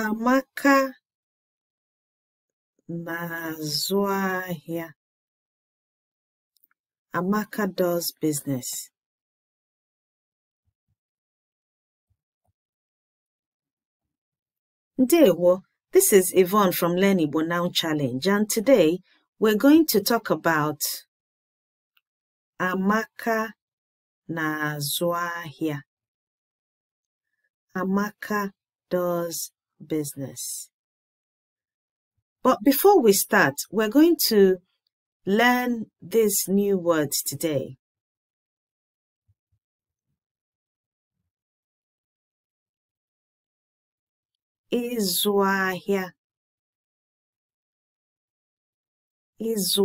Amaka na-azụ ahịa. Amaka does business. Ndewo, this is Yvonne from Learn Igbo Now Challenge, and today we're going to talk about Amaka na-azụ ahịa. Amaka does business. But before we start, we're going to learn these new words today. Ịzụ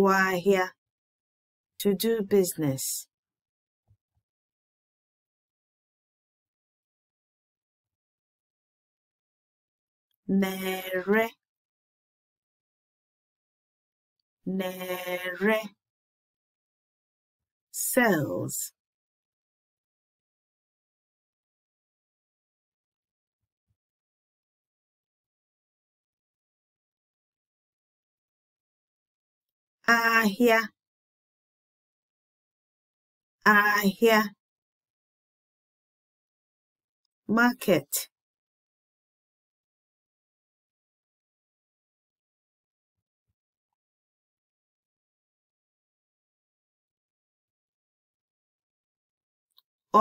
ahịa to do business. nere nere cells ahịa ahịa market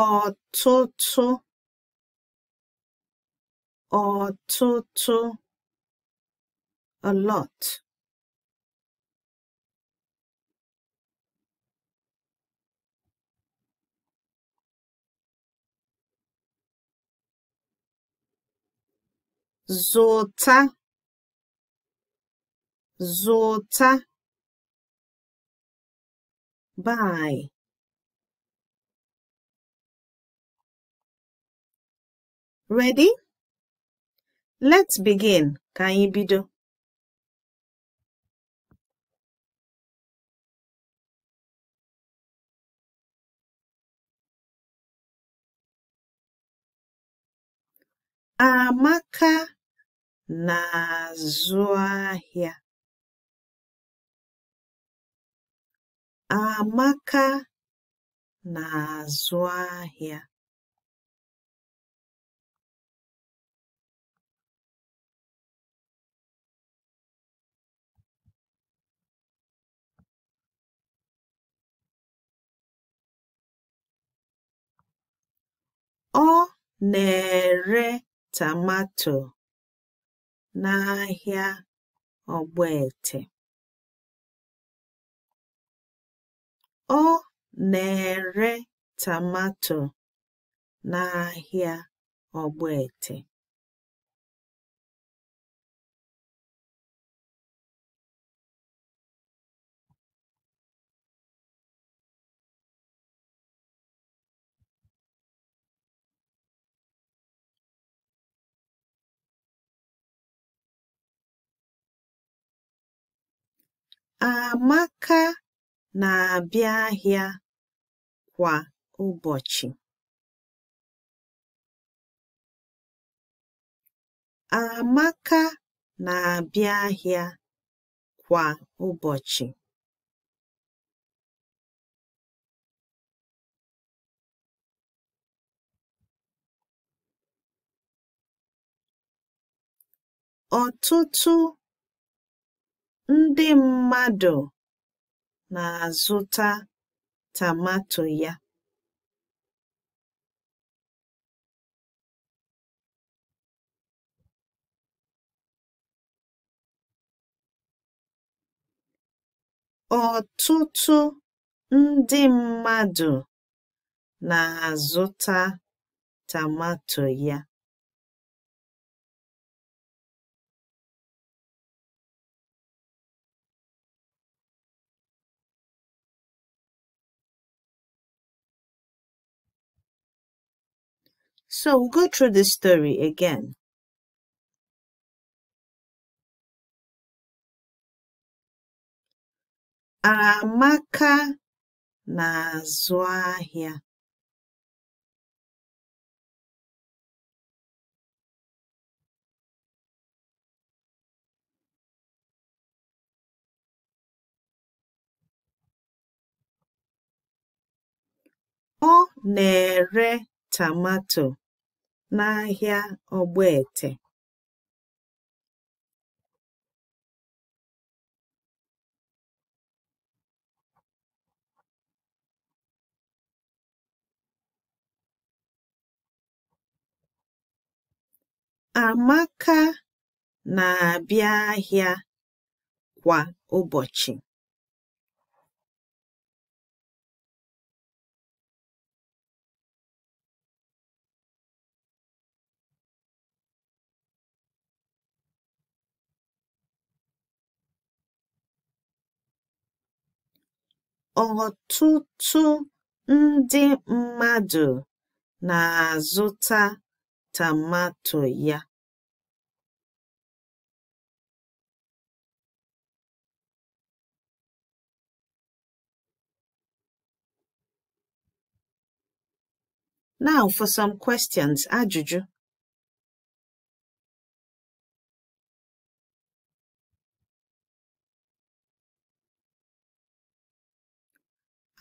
ọtụtụ ọtụtụ a lot zụta zụta buy Ready? Let's begin. Ka anyị bido. Amaka na-azụ ahịa. Amaka na-azụ ahịa. Ọ na-ere tomato n'ahịa Ọ na-ere tomato n'ahịa Ogbete Amaka na-abịa ahịa kwa ụbọchị. ahịa kwa ụbọchị. Ọtụtụ Ndị mmadụ na-azụta tamato ya. Ọtụtụ ndị mmadụ na-azụta tamato ya. So we'll go through this story again. Amaka na-azụ ahịa. Ọ na-ere tomato. n'ahịa ogbete Amaka na-abịa ahịa kwa ụbọchị. Ọtụtụ ndị mmadụ na-azụta tomato ya. Now for some questions. Ajụjụ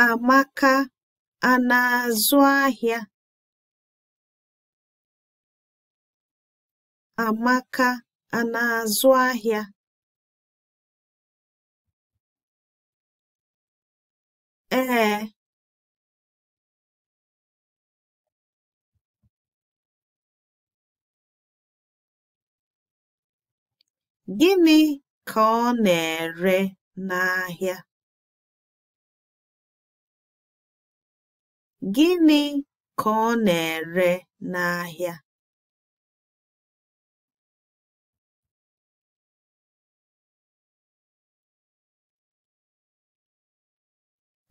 Amaka a na-azụ ahịa? Amaka a na-azụ ahịa? Ee. Gịnị ka ọ na-ere n'ahịa? Gịnị ka ọ na-ere n'ahịa?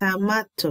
Tamato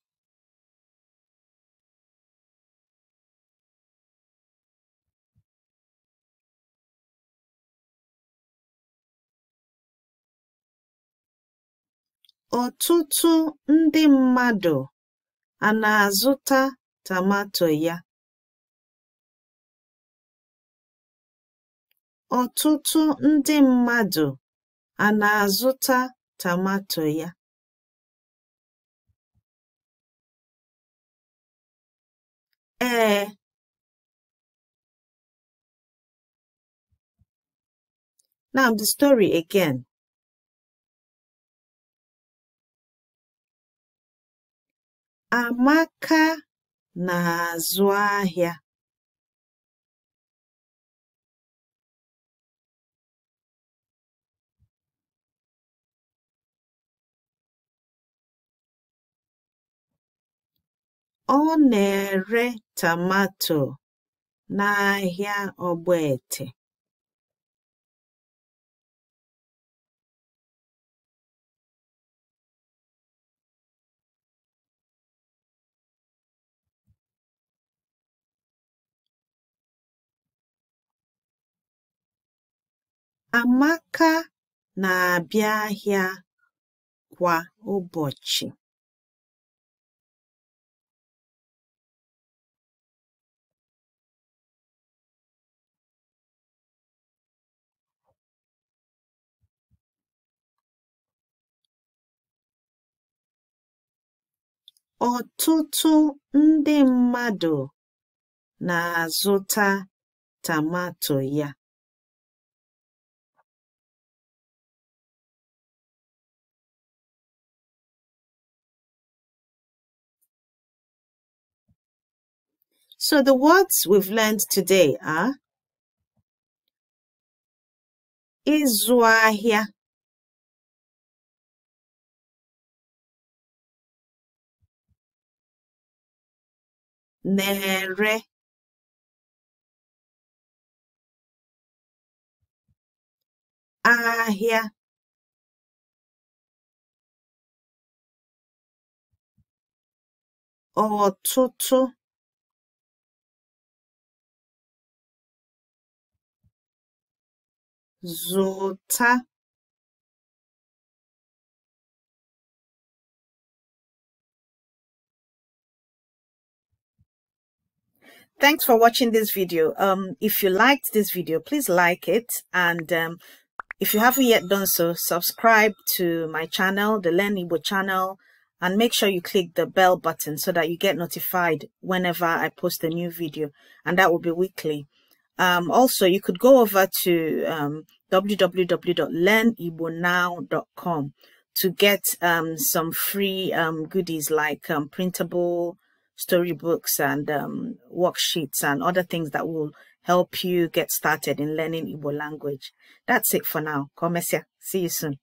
Ọtụtụ ndị mmadụ a na-azụta tomato ya? Ọtụtụ ndị mmadụ Ee. Now the story again. Amaka na-azụ ahịa. Ọ na-ere tomato n'ahịa Ogbete Amaka na-abịa ahịa kwa ụbọchị. Ọtụtụ ndị mmadụ na-azụta tomato ya. So the words we've learned today are ịzụ ahịa na-ere ahịa Zota. Thanks for watching this video. Um, if you liked this video, please like it. And um, if you haven't yet done so, subscribe to my channel, the Learn Igbo channel, and make sure you click the bell button so that you get notified whenever I post a new video. And that will be weekly. Um, also, you could go over to um, www.learnibonow.com to get um, some free um, goodies like um, printable storybooks and um, worksheets and other things that will help you get started in learning Igbo language. That's it for now. Komesia. See you soon.